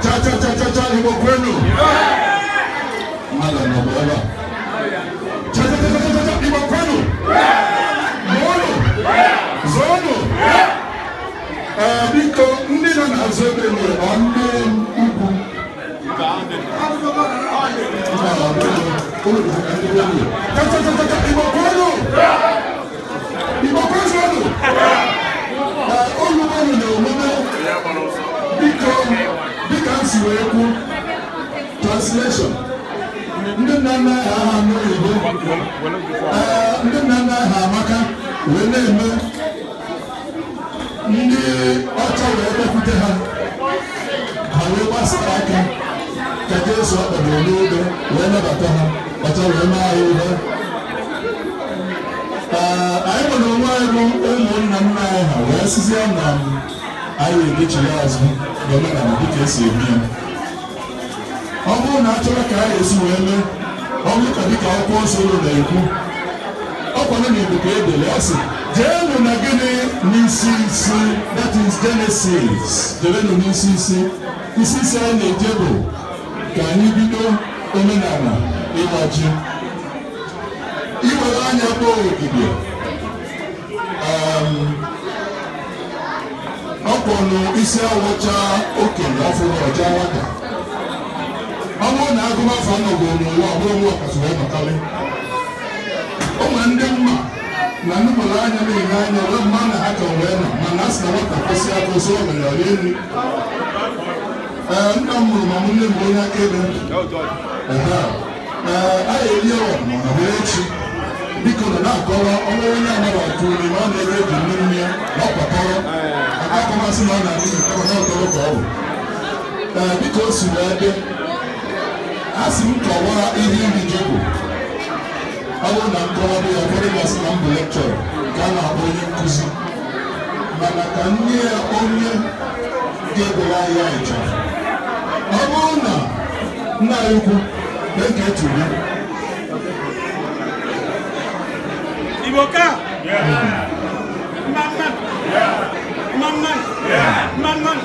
Cha cha cha cha cha yuko kwenu. Mada na Cha cha cha cha cha kwenu. Moro. Zono. biko na zebe ni ọnụ ugwu. Cha translation ndị nna nna anyị ha n'oyibo ndị nna nna anyị ha amaka wee na-eme ndị ọcha wee kpọkwute ha ha wee gbasara aka ka Jesu akpadoro n'oge wee nabata ha ọcha wee mee anyị ihe anyị nwere onwe anyị bụ ụmụnna nna anyị ha wee sizie na anyị egechighị azụ na-eme gọọmenti dịka esi ebi ya ọ bụrụ na achọrọ ka a ga-esi wee mee ọnwụ ka dịka akwụkwọ nsọ ụlọ na-ekwu ọkwado na ebuka edere ya sị jeenụ na gịnị n'isi isi that is genesis jerenụ n'isi isi isi isi anyị na-eje bụ ka anyị bido omenala ịgbaji iwere anya bụ ogige um, ọ kpọrọ isi awụcha okenye afọ ọjọọ nwata ọnwụ na agụma afọ anọgo n'ụwa ọbụrụ nwa ọkazụ wee batalị o nwere ndị mma na nnụpụrụ anya na-enye anya ole mma na ha ka wee nọ mana a sị na nwata kwụsị aka osi ọ mere ọrịa elu ee nna m mụrụ ma m nne m bụ onye akaebe ee a ga-eri ọwa ma wee echi biko na na-akọrọ ọnwa onye amara atụ n'ime ọ na-ere eji mmiri ya na ọkpakọrọ akakọmasị na ọ na-adị nke ọ na-atọrọ ka ọ bụ ee biko o si wee dị a sị m kọwara ihe ibi gị bụ ọ bụrụ na m kọwara ya ụfọdụ gasị na mbụ lekchọr ka a na-abụ onye nkụzi mana ka nne ya onye ga-ebere ya ịcha ọ bụrụ na nna ya ukwu na-eke tụrụ Igbo ka mmanụ mmanụ mmanụ mmanụ